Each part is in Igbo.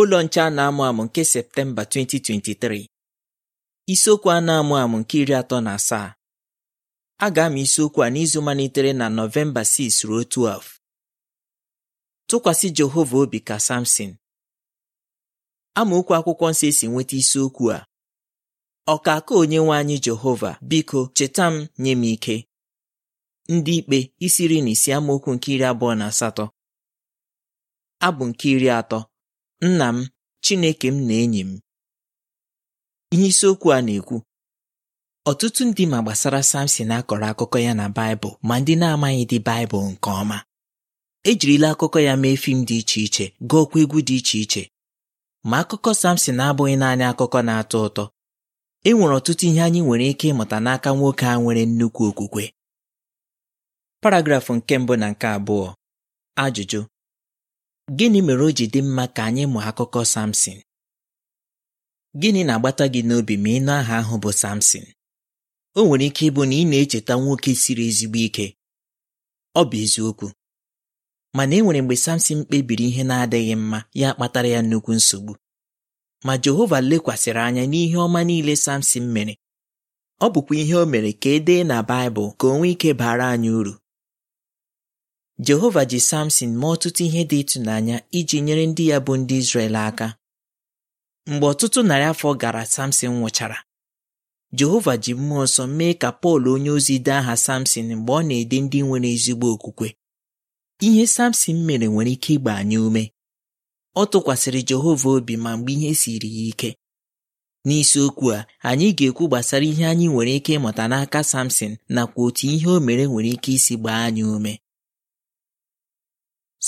ụlọ nche a na-amụ amụ nke Septemba 2023 isiokwu a na-amụ amụ nke iri atọ na asaa a ga amụ isiokwu a n'izu malitere na Nọvemba 6 ruo 12 tụkwasị Jehova obi ka Samson amaokwu akwụkwọ nsọ esi nweta isiokwu a ọkaka onye nwe anyị Jehova biko cheta m nye m ike ndị ikpe isi na isi amaokwu nke iri abụọ na asatọ abụ nke iri atọ nna m Chineke m na enyi m ihe isiokwu a na-ekwu ọtụtụ ndị ma gbasara Samson akọrọ akụkọ ya na Baịbụl ma ndị na-amaghị dị Baịbụl nke ọma ejirila akụkọ ya mee fim dị iche iche gụọkwa egwu dị iche iche ma akụkọ Samson abụghị naanị akụkọ na-atọ ụtọ e nwere ọtụtụ ihe anyị nwere ike ịmụta n'aka nwoke a nwere nnukwu okwukwe paragrafụ nke mbụ na nke abụọ ajụjụ Gịnị mere o ji dị mma ka anyị mụọ akụkọ Samson? Gịnị na-agbata gị n'obi ma ị nụ aha ahụ bụ Samson? O nwere ike ịbụ na ị na-echeta nwoke siri ezigbo ike. Ọ bụ eziokwu. Mana e nwere mgbe Samsin kpebiri ihe na-adịghị mma ya kpatara ya nnukwu nsogbu. Ma Jehova lekwasịrị anya n'ihe ọma niile Samsin mere. Ọ bụkwa ihe o mere ka e dee na Baịbụl ka o nwee ike baara anyị uru. jehova ji samson mee ọtụtụ ihe dị ịtụnanya iji nyere ndị ya bụ ndị Izrel aka mgbe ọtụtụ narị afọ gara samson nwụchara jehova ji mmụọ nsọ mee ka pọl onye ozi dee aha samson mgbe ọ na-ede ndị nwere ezigbo okwukwe ihe samson mere nwere ike ịgba anyị ume ọ tụkwasịrị jehova obi ma mgbe ihe siri ya ike n'isiokwu a anyị ga-ekwu gbasara ihe anyị nwere ike ịmụta n'aka samson nakwa otu ihe o mere nwere ike isi gbaa anyị ume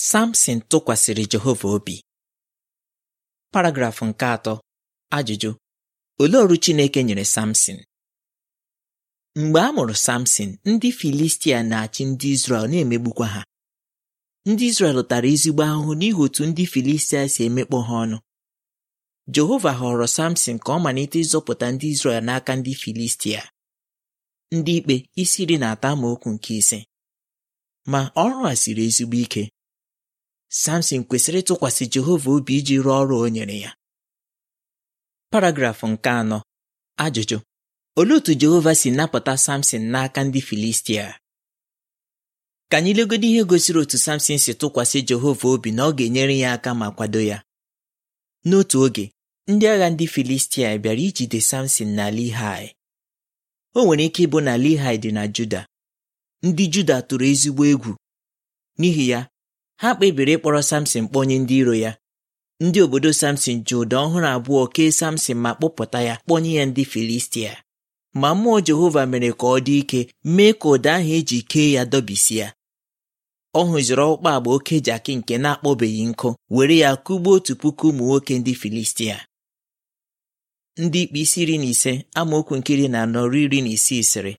Samson tụkwasịrị Jehova obi paragrafụ nke atọ ajụjụ olee ọrụ Chineke nyere Samson mgbe a mụrụ Samson ndị Filistia na-achị ndị Izrel na-emegbukwa ha ndị Izrel tara ezigbo ahụhụ n'ihi otu ndị Filistia si emekpọ ha ọnụ Jehova họrọ Samson ka ọ malite ịzọpụta ndị Izrel n'aka ndị Filistia ndị ikpe isi iri na atọ okwu nke ise ma ọrụ a siri ezigbo ike Samson kwesịrị ịtụkwasị Jehova obi iji rụọ ọrụ o nyere ya paragraf nke anọ ajụjụ olee otu Jehova si napụta Samson n'aka ndị Filistia ka anyị legodo ihe gosiri otu Samson si tụkwasị Jehova obi na ọ ga-enyere ya aka ma kwado ya n'otu oge ndị agha ndị Filistia bịara ijide Samson na Lehi o nwere ike ịbụ na Lehi dị na Juda ndị Juda tụrụ ezigbo egwu n'ihi ya ha kpebiri ịkpọrọ samson kpọnye ndị iro ya ndị obodo samson ji ụda ọhụrụ abụọ kee samson ma kpọpụta ya kpọnye ya ndị filistia ma mmụọ jehova mere ka ọ dị ike mee ka ụda ahụ eji kee ya dọbisia ọ hụziri ọkpụkpa agba oke jaki nke na-akpọbeghị nkụ were ya kụgbuo otu puku ụmụ nwoke ndị filistia ndị ikpe isi iri na ise amaokwu nkiri na anọ iri na isii sịrị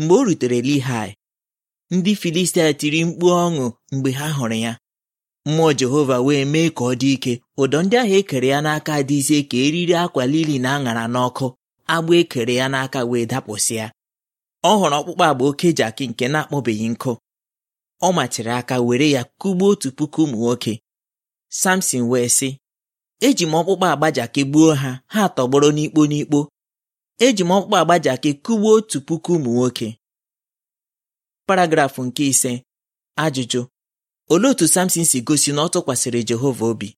mgbe o rutere lihai ndị Filistia tiri mkpu ọṅụ mgbe ha hụrụ ya mmụọ Jehova wee mee ka ọ dị ike ụdọ ndị ahụ ekere ya n'aka dị ka eriri akwa lili na aṅara n'ọkụ agba ekere ya n'aka wee dapụsịa ọ hụrụ ọkpụkpọ agba oke jaki nke na-akpọbeghị nkụ ọ machiri aka were ya kụgbuo otu puku ụmụ nwoke Samson wee sị eji m ọkpụkpọ agba jaki gbuo ha ha tọgbọrọ n'ikpo n'ikpo eji m ọkpụkpọ agba jaki kụgbuo otu puku ụmụ nwoke paragrafụ nke ise ajụjụ olee otu Samson si gosi na ọ tụkwasịrị Jehova obi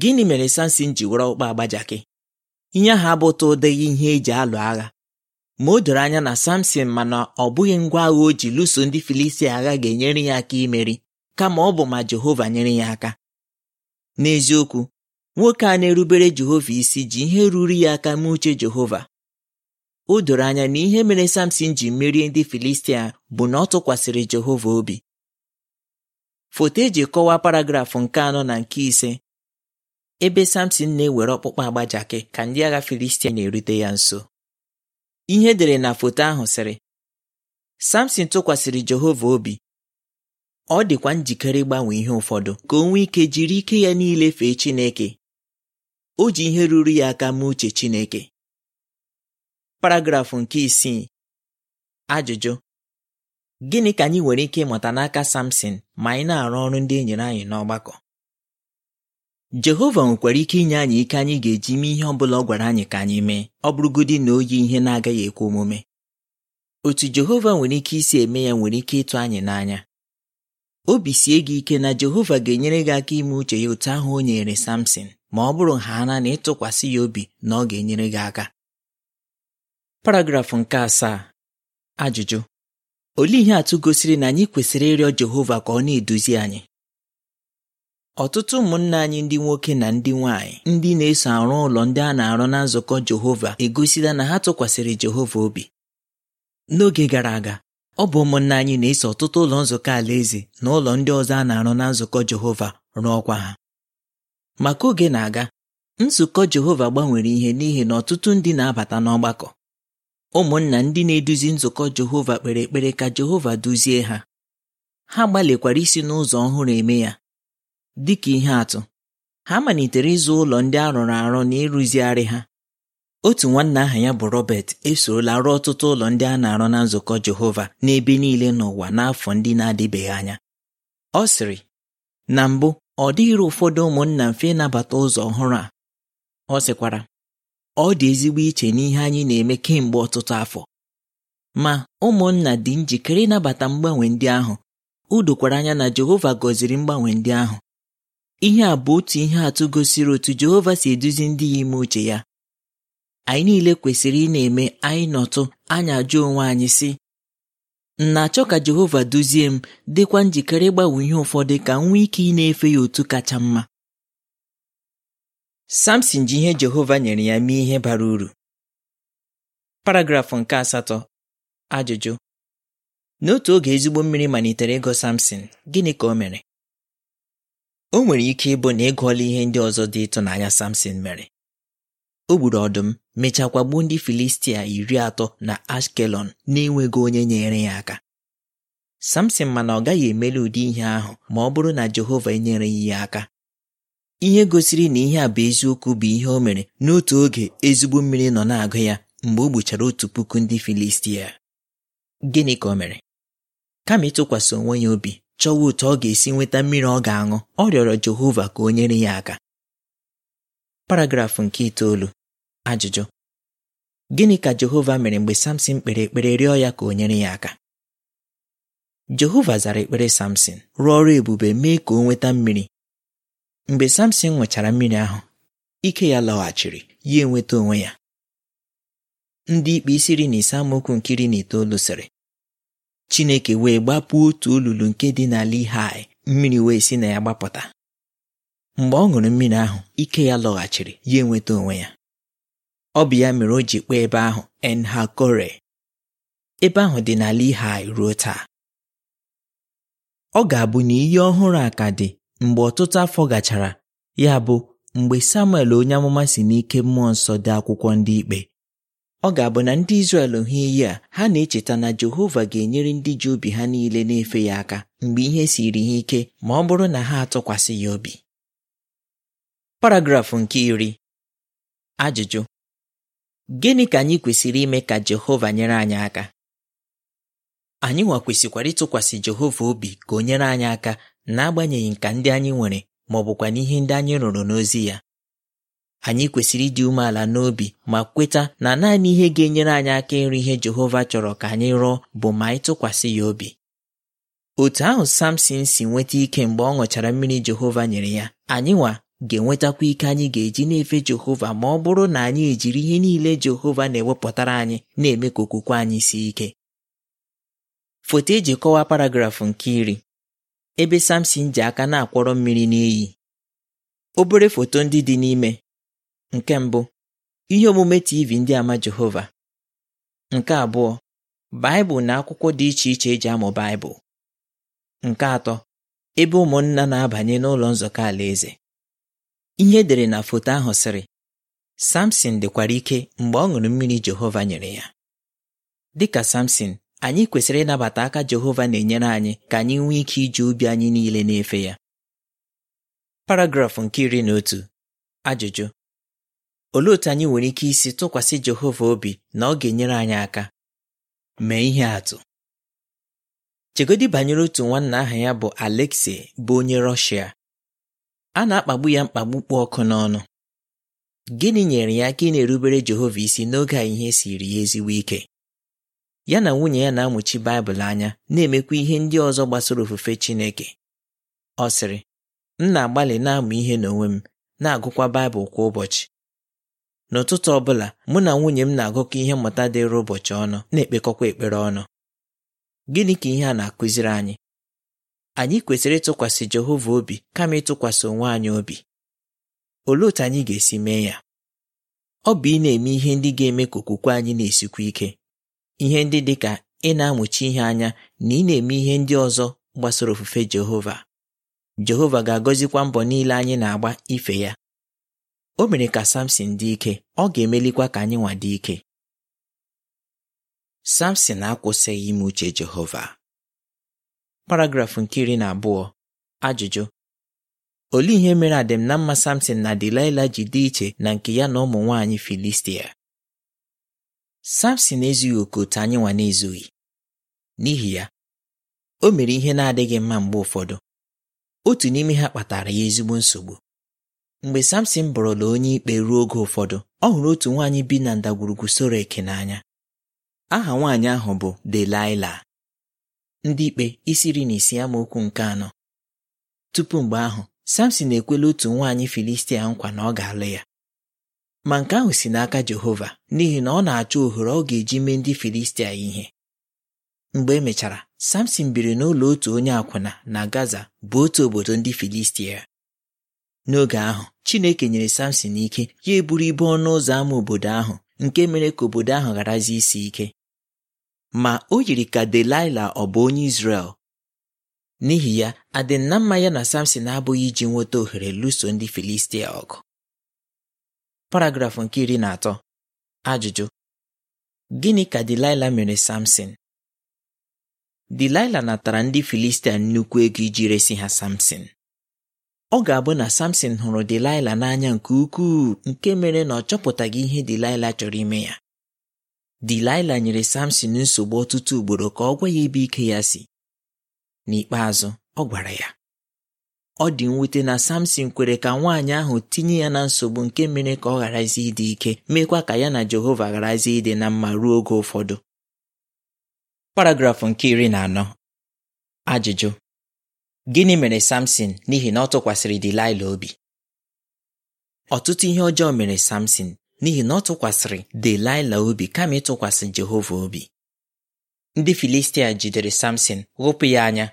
gịnị mere Samson ji were ọkpa agbajakị ihe ahụ abụta ụdịghị ihe eji alụ agha ma o doro anya na Samson mana ọ bụghị ngwa agha o ji lụso ndị Filistia agha ga-enyere ya aka imeri kama ọ bụ ma Jehova nyere ya aka n'eziokwu nwoke a na-erubere Jehova isi ji ihe ruru ya aka mee uche Jehova o doro anya na ihe mere samson ji merie ndị filistia bụ na ọ tụkwasịrị jehova obi foto eji kọwaa paragraf nke anọ na nke ise ebe samson na-ewere ọkpụkpọ agbajakị ka ndị agha filistia na-erute ya nso ihe dere na foto ahụ sịrị samson tụkwasịrị jehova obi ọ dịkwa njikere ịgbanwe ihe ụfọdụ ka o nwee ike jiri ike ya niile fee chineke o ji ihe ruru ya aka mee uche chineke paragrafụ nke isii ajụjụ gịnị ka anyị nwere ike ịmụta n'aka Samson ma anyị na-arụ ọrụ ndị e nyere anyị n'ọgbakọ Jehova nwekwara ike inye anyị ike anyị ga-eji mee ihe ọ bụla ọ gwara anyị ka anyị mee ọ bụrụgodị na o yi ihe na-agaghị ekwe omume otu Jehova nwere ike isi eme ya nwere ike ịtụ anyị n'anya obi sie gị ike na Jehova ga-enyere gị aka ime uche ya otu ahụ o nyere Samson ma ọ bụrụ ha na na ịtụkwasị ya obi na ọ ga-enyere gị aka paragrafụ nke asaa ajụjụ olee ihe atụ gosiri na anyị kwesịrị ịrịọ Jehova ka ọ na-eduzi anyị ọtụtụ ụmụnna anyị ndị nwoke na ndị nwanyị ndị na-eso arụ ụlọ ndị a na-arụ na nzukọ Jehova egosila na ha tụkwasịrị Jehova obi n'oge gara aga ọ bụ ụmụnna anyị na-eso ọtụtụ ụlọ nzukọ Alaeze na ụlọ ndị ọzọ a na-arụ na nzukọ Jehova rụọkwa ha maka oge na-aga nzukọ Jehova gbanwere ihe n'ihi na ọtụtụ ndị na-abata n'ọgbakọ ụmụnna ndị na-eduzi nzukọ Jehova kpere ekpere ka Jehova duzie ha ha gbalịkwara isi n'ụzọ ọhụrụ eme ya dịka ihe atụ ha malitere ịzụ ụlọ ndị a rụrụ arụ na ịrụzigharị ha otu nwanna aha ya bụ Robert esorola rụọ ọtụtụ ụlọ ndị a na-arụ na nzukọ Jehova n'ebe niile n'ụwa n'afọ ndị na-adịbeghị anya ọ sịrị na mbụ ọ dịghịrị ụfọdụ ụmụnna mfe ịnabata ụzọ ọhụrụ a ọ sịkwara ọ dị ezigbo iche n'ihe anyị na-eme kemgbe ọtụtụ afọ ma ụmụnna dị njikere ịnabata mgbanwe ndị ahụ udokwara anya na Jehova gọziri mgbanwe ndị ahụ ihe a bụ otu ihe atụ gosiri otu Jehova si eduzi ndị ya ime uche ya anyị niile kwesịrị ị na-eme anyị nọtụ anyị ajụ onwe anyị sị na-achọ ka Jehova duzie m dịkwa njikere ịgbanwe ihe ụfọdụ ka m nwee ike ị na-efe ya otu kacha mma Samson ji ihe Jehova nyere ya mee ihe bara uru paragrafụ nke asatọ ajụjụ n'otu oge ezigbo mmiri malitere ịgọ Samson gịnị ka o mere o nwere ike ịbụ na ịgụọla ihe ndị ọzọ dị ịtụnanya Samson mere o gburu ọdụm mechakwa gbuo ndị Filistia iri atọ na Ashkelon na-enweghị onye nyere ya aka Samson mana ọ gaghị emeli ụdị ihe ahụ ma ọ bụrụ na Jehova enyereghị ya aka ihe gosiri na ihe a bụ eziokwu bụ ihe o mere n'otu oge ezigbo mmiri nọ na-agụ ya mgbe o gbuchara otu puku ndị Filistia gịnị ka o mere kama ịtụkwasị onwe ya obi chọwa otu ọ ga-esi nweta mmiri ọ ga-aṅụ ọ rịọrọ Jehova ka o nyere ya aka paragrafụ nke itoolu ajụjụ gịnị ka Jehova mere mgbe Samson kpere ekpere rịọ ya ka o nyere ya aka Jehova zara ekpere Samson rụọ ọrụ ebube mee ka o nweta mmiri mgbe samson nwechara mmiri ahụ ike ya lọghachiri ya enweta onwe ya ndị ikpe isiri na ise amaokwu nke iri na itoolu sịrị chineke wee gbapụ otu olulu nke dị n'ala Lehi mmiri wee si na ya gbapụta mgbe ọ ṅụrụ mmiri ahụ ike ya lọghachiri ya enweta onwe ya ọ bụ ya mere o ji kpee ebe ahụ Enhakore ebe ahụ dị n'ala Lehi ruo taa ọ ga-abụ na iyi ọhụrụ a ka dị mgbe ọtụtụ afọ gachara ya bụ mgbe samuel onye amụma si n'ike mmụọ nsọ dị akwụkwọ ndị ikpe ọ ga-abụ na ndị Izrel hụ iyi a ha na-echeta na Jehova ga-enyere ndị ji obi ha niile na-efe ya aka mgbe ihe siri ha ike ma ọ bụrụ na ha atụkwasị ya obi paragrafụ nke iri ajụjụ gịnị ka anyị kwesịrị ime ka Jehova nyere anyị aka anyị nwa kwesịkwara ịtụkwasị Jehova obi ka o nyere anyị aka n'agbanyeghị nka ndị anyị nwere ma ọ bụkwa n'ihe ndị anyị rụrụ n'ozi ya anyị kwesịrị ịdị umeala n'obi ma kweta na naanị ihe ga-enyere anyị aka ịrụ ihe Jehova chọrọ ka anyị rụọ bụ ma anyị tụkwasị ya obi otu ahụ Samson si nweta ike mgbe ọ ṅụchara mmiri Jehova nyere ya anyịnwa ga-enwetakwa ike anyị ga-eji na-efe Jehova ma ọ bụrụ na anyị ejiri ihe niile Jehova na-ewepụtara anyị na-eme ka okwukwe anyị sie ike foto eji kọwaa paragrafụ nke iri ebe samson ji aka na-akwọrọ mmiri n'iyi obere foto ndị dị n'ime nke mbụ ihe omume tv ndị ama jehova nke abụọ baịbụl na akwụkwọ dị iche iche eji amụ baịbụl nke atọ ebe ụmụnna na-abanye n'ụlọ nzukọ alaeze ihe dere na foto ahụ sịrị samson dịkwara ike mgbe ọ ṅụrụ mmiri jehova nyere ya dịka samson anyị kwesịrị ịnabata aka Jehova na-enyere anyị ka anyị nwee ike iji ubi anyị niile na-efe ya paragrafụ nke iri na otu ajụjụ olee otu anyị nwere ike isi tụkwasị Jehova obi na ọ ga-enyere anyị aka mee ihe atụ chegodi banyere otu nwanna aha ya bụ Alexei bụ onye Rọshia a na-akpagbu ya mkpagbu kpụ ọkụ n'ọnụ gịnị nyere ya aka ị na-erubere Jehova isi n'oge a ihe siri ya ezigbo ike ya na nwunye ya na-amụchi Baịbụl anya na-emekwa ihe ndị ọzọ gbasara ofufe Chineke ọ sịrị m na-agbalị na-amụ ihe n'onwe m na-agụkwa Baịbụl kwa ụbọchị n'ụtụtụ ọ bụla mụ na nwunye m na-agụkọ ihe mmụta dịrị ụbọchị ọnụ na-ekpekọkwa ekpere ọnụ gịnị ka ihe a na-akụziri anyị anyị kwesịrị ịtụkwasị Jehova obi kama ịtụkwasị onwe anyị obi olee otu anyị ga-esi mee ya ọ bụ ị na-eme ihe ndị ga-eme ka okwukwe anyị na-esikwa ike ihe ndị dị ka ị na-amụchi ihe anya na ị na-eme ihe ndị ọzọ gbasara ofufe Jehova Jehova ga-agọzikwa mbọ niile anyị na-agba ife ya o mere ka Samson dị ike ọ ga-emelikwa ka anyị nwa dị ike Samson akwụsịghị ime uche Jehova Paragraf nke iri na abụọ ajụjụ olee ihe mere adịm na mma Samson na Delilah ji dị iche na nke ya na ụmụ nwaanyị Filistia Samson ezughị oke otu anyị nwa na-ezughị n'ihi ya o mere ihe na-adịghị mma mgbe ụfọdụ otu n'ime ha kpatara ya ezigbo nsogbu mgbe Samson bụrụla onye ikpe ruo oge ụfọdụ ọ hụrụ otu nwaanyị bi na ndagwurugwu Sorek n'anya aha nwaanyị ahụ bụ Delilah ndị ikpe isi na isi amaokwu nke anọ tupu mgbe ahụ Samson ekwela otu nwaanyị Filistia nkwa na ọ ga-alụ ya ma nke ahụ si n'aka Jehova n'ihi na ọ na-achọ ohere ọ ga-eji mee ndị Filistia ihe mgbe emechara Samson biri n'ụlọ otu onye akwụna na Gaza bụ otu obodo ndị Filistia n'oge ahụ Chineke nyere Samson ike ya eburu ibu ọnụ ụzọ ámá obodo ahụ nke mere ka obodo ahụ gharazi isi ike ma o yiri ka delila ọ bụ onye Izrel n'ihi ya adịnna mma ya na Samson abụghị iji nweta ohere lụso ndị Filistia ọgụ paragrafụ nke iri na atọ ajụjụ gịnị ka Dilaịla mere Samson Dilaịla natara ndị Filistia nnukwu ego iji resi ha Samson ọ ga-abụ na Samson hụrụ Dilaịla n'anya nke ukwuu nke mere na ọ chọpụtaghị ihe Dilaịla chọrọ ime ya Dilaịla nyere Samson nsogbu ọtụtụ ugboro ka ọ gwa ya ebe ike ya si n'ikpeazụ ọ gwara ya ọ dị mwute na samson kwere ka nwaanyị ahụ tinye ya na nsogbu nke mere ka ọ gharazi ịdị ike meekwa ka ya na jehova gharazi ịdị na mma ruo oge ụfọdụ paragrafụ nke iri na anọ ajụjụ gịnị mere samson n'ihi na ọ tụkwasịrị obi ọtụtụ ihe ọjọọ mere samson n'ihi na ọ tụkwasịrị Delaịla obi kama ịtụkwasị jehova obi ndị filistia jidere samson ghụpụ ya anya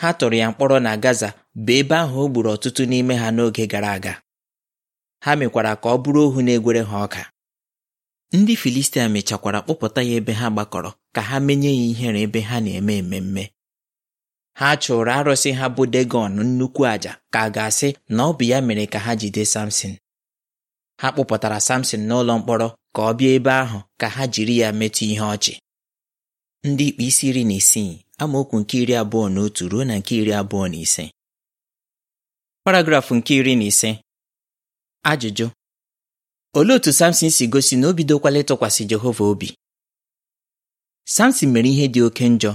ha tụrụ ya mkpọrọ na Gaza bụ ebe ahụ o gburu ọtụtụ n'ime ha n'oge gara aga ha mekwara ka ọ bụrụ ohu na-egwere ha ọka ndị Filistia mechakwara kpụpụta ya ebe ha gbakọrọ ka ha menye ya ihere ebe ha na-eme ememme ha chụrụ arụsị ha bụ Degọn nnukwu àjà ka a ga-asị na ọ bụ ya mere ka ha jide Samson ha kpụpụtara Samson n'ụlọ mkpọrọ ka ọ bịa ebe ahụ ka ha jiri ya metụ ihe ọchị ndị ikpe isi iri na isii amaokwu nke iri abụọ na otu ruo na nke iri abụọ na ise paragrafụ nke iri na ise ajụjụ olee otu Samson si gosi na o bidokwala ịtụkwasị Jehova obi Samson mere ihe dị oke njọ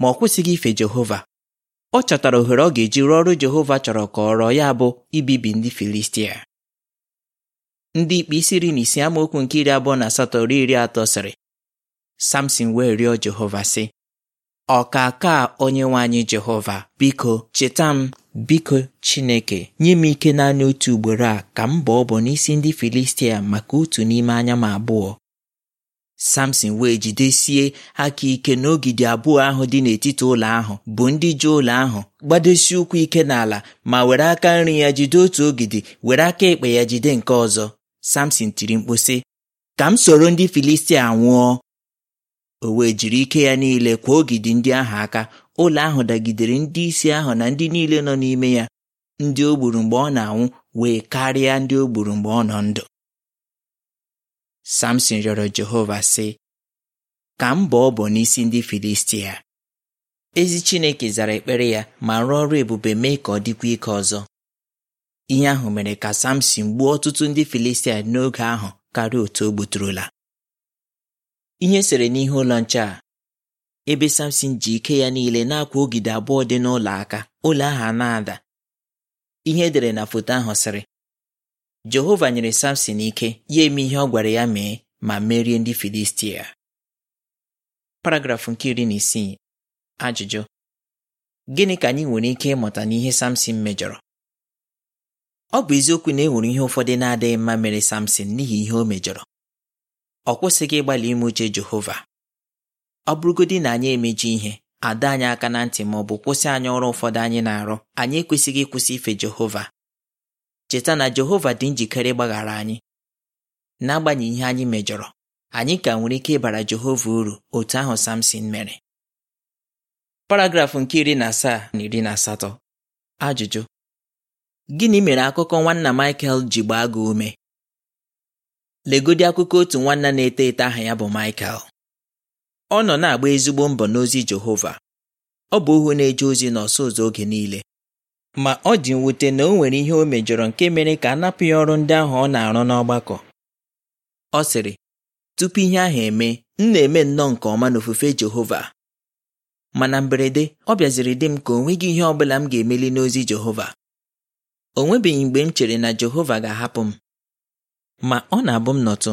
ma ọ kwụsịghị ife Jehova ọ chọtara ohere ọ ga-eji rụọ ọrụ Jehova chọrọ ka ọ rọọ ya bụ ibibi ndị Filistia ndị ikpe isi iri na ise amaokwu nke iri abụọ na asatọ ruo iri atọ sịrị Samson wee rịọ Jehova sị onye onye anyị jehova biko cheta m biko chineke nye m ike naanị otu ugboro a ka m bụ bọ n'isi ndị filistia maka otu n'ime anya m abụọ samson wee jidesie aka ike n'ogide abụọ ahụ dị n'etiti ụlọ ahụ bụ ndị ji ụlọ ahụ gbadosie ụkwụ ike n'ala ma were aka nri ya jide otu ogidi were aka ekpe ya jide nke ọzọ samson tiri mkpu ka m soro ndị filistia nwụọ o wee jiri ike ya niile kwa ogidi ndị ahụ aka ụlọ ahụ dagidere ndị isi ahụ na ndị niile nọ n'ime ya ndị o gburu mgbe ọ na-anwụ wee karịa ndị o gburu mgbe ọ nọ ndụ Samson rịọrọ Jehova sị ka m ọ bụ n'isi ndị Filistia ezi Chineke zara ekpere ya ma rụọ ọrụ ebube mee ka ọ dịkwa ike ọzọ ihe ahụ mere ka Samson gbuo ọtụtụ ndị Filistia n'oge ahụ karịa otu o gbuturula ihe sere n'ihe ụlọ nche a ebe samson ji ike ya niile na-akwa ogide abụọ dị n'ụlọ aka ụlọ ahụ a na-ada ihe edere na foto ahụ sịrị Jehova nyere samson ike ya eme ihe ọ gwara ya mee ma merie ndị Filistia paragrafụ nke iri na isii ajụjụ gịnị ka anyị nwere ike ịmụta n'ihe samson mejọrọ ọ bụ eziokwu na e nwere ihe ụfọdụ na-adịghị mma mere samson n'ihi ihe o mejọrọ ọ kwụsịghị ịgbalị ime uche Jehova ọ bụrụgodị na anyị emeji ihe ada anyị aka na ntị ma ọ bụ kwụsị anyị ọrụ ụfọdụ anyị na-arụ anyị ekwesịghị ịkwụsị ife Jehova cheta na Jehova dị njikere ịgbaghara anyị n'agbanyeghị ihe anyị mejọrọ anyị ka nwere ike ịbara Jehova uru otu ahụ Samson mere paragrafụ nke iri na asaa na iri na asatọ ajụjụ gịnị mere akụkọ nwanna Michael ji gbaa gị ume legodi akụkọ otu nwanna na-eto eto aha ya bụ Michael ọ nọ na-agba ezigbo mbọ n'ozi Jehova ọ bụ ohu na-eje ozi n'ọsọ ụzọ oge niile ma ọ dị mwute na o nwere ihe o mejọrọ nke mere ka a napụ ya ọrụ ndị ahụ ọ na-arụ n'ọgbakọ ọ sịrị tupu ihe ahụ eme m na-eme nnọọ nke ọma n'ofufe Jehova mana mberede ọ bịaziri dị m ka o nweghị ihe ọ bụla m ga-emeli n'ozi Jehova o nwebeghị mgbe m chere na Jehova ga-ahapụ m ma ọ na-abụ m nọtụ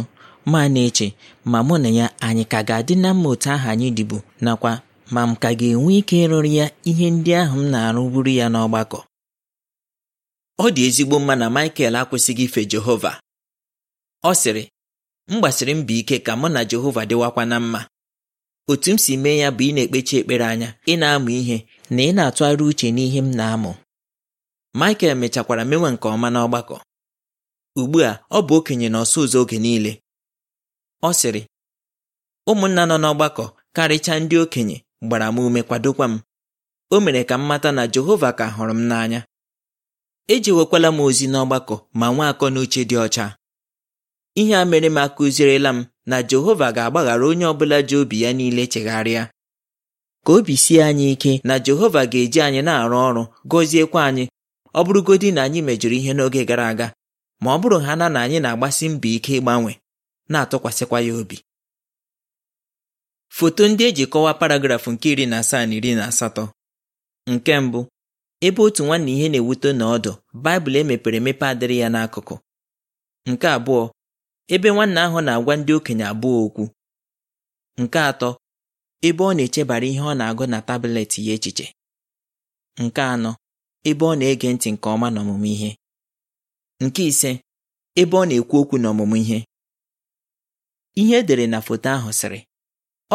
ma na-eche ma mụ na ya anyị ka ga-adị na mma otu ahụ anyị dịbu nakwa ma m ka ga-enwe ike ịrụrụ ya ihe ndị ahụ m na-arụburu ya n'ọgbakọ ọ dị ezigbo mma na Michael akwụsịghị ife Jehova ọ sịrị m gbasiri mbọ ike ka mụ na Jehova dịwakwa na mma otu m si mee ya bụ ị na-ekpechi ekpere anya ị na-amụ ihe na ị na-atụgharị uche n'ihe m na-amụ Michael mechakwara mewe nke ọma n'ọgbakọ ugbu a ọ bụ okenye na ọsụ ụzọ oge niile ọ sịrị ụmụnna nọ n'ọgbakọ karịchaa ndị okenye gbara m ume kwadokwa m o mere ka m mata na Jehova ka hụrụ m n'anya ejewekwala m ozi n'ọgbakọ ma nwee akọ n'uche dị ọcha ihe a mere m akụzierela m na Jehova ga-agbaghara onye ọbụla ji obi ya niile chegharịa ka obi sie anyị ike na Jehova ga-eji anyị na-arụ ọrụ gọziekwa anyị ọ bụrụgodị na anyị mejọrọ ihe n'oge gara aga ma ọ bụrụ ha na na anyị na-agbasi mbọ ike ịgbanwe na-atụkwasịkwa ya obi foto ndị eji kọwaa paragrafụ nke iri na asaa na iri na asatọ nke mbụ ebe otu nwanne ihe na-ewute na ọdụ baịbụl emepere emepe adịrị ya n'akụkụ nke abụọ ebe nwanne ahụ na-agwa ndị okenye abụọ okwu nke atọ ebe ọ na-echebara ihe ọ na-agụ na tabletị ya echiche nke anọ ebe ọ na-ege ntị nke ọma n'ọmụmụ ihe nke ise ebe ọ na-ekwu okwu n'ọmụmụ ihe ihe edere na foto ahụ sịrị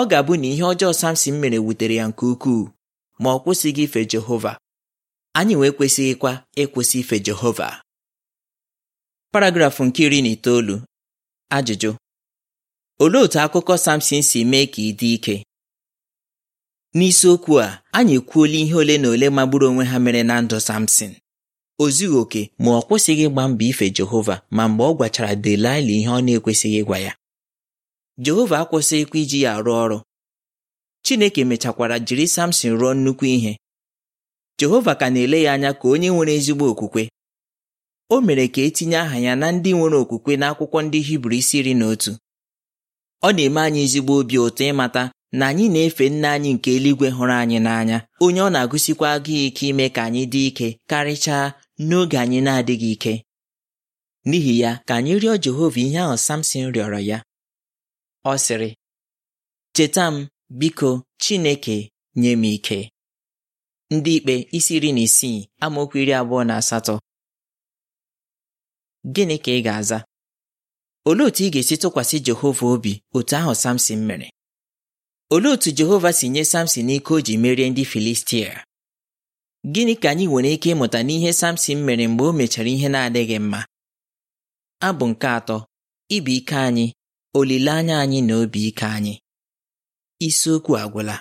ọ ga-abụ na ihe ọjọọ Samson mere wutere ya nke ukwuu ma ọ kwụsịghị ife Jehova anyị wee kwesịghịkwa ịkwụsị ife Jehova paragrafụ nke iri na itoolu ajụjụ olee otu akụkọ Samson si mee ka ị dị ike n'isiokwu a anyị ekwuola ihe ole na ole magburu onwe ha mere na ndụ Samsin o zughị oke ma ọ kwụsịghị ịgba mbọ ife Jehova ma mgbe ọ gwachara Delaịla ihe ọ na-ekwesịghị ịgwa ya Jehova akwụsịghịkwa iji ya arụ ọrụ Chineke mechakwara jiri Samson rụọ nnukwu ihe Jehova ka na-ele ya anya ka onye nwere ezigbo okwukwe o mere ka etinye aha ya na ndị nwere okwukwe n'akwụkwọ ndị Hibru isi iri na otu ọ na-eme anyị ezigbo obi ụtọ ịmata na anyị na-efe nna anyị nke eluigwe hụrụ anyị n'anya onye ọ na-agụsikwa agụ ike ime ka anyị dị ike karịchaa n'oge anyị na-adịghị ike n'ihi ya ka anyị rịọ Jehova ihe ahụ Samson rịọrọ ya ọ sịrị cheta m biko Chineke nye m ike ndị ikpe isi iri na isii amaokwu iri abụọ na asatọ gịnị ka ị ga-aza olee otu ị ga-esi tụkwasị Jehova obi otu ahụ Samson mere olee otu Jehova si nye Samson ike o ji merie ndị Filistia gịnị ka anyị nwere ike ịmụta n'ihe Samson mere mgbe o mechara ihe na-adịghị mma abụ nke atọ ibi ike anyị olileanya anyị na obi ike anyị isiokwu agwụla